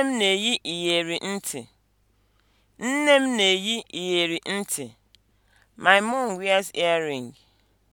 Nne m na-eyi iyeri ntị. Nne m na-eyi iyeri ntị. My mum wears earring.